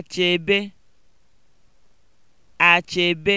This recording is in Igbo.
achebe achebe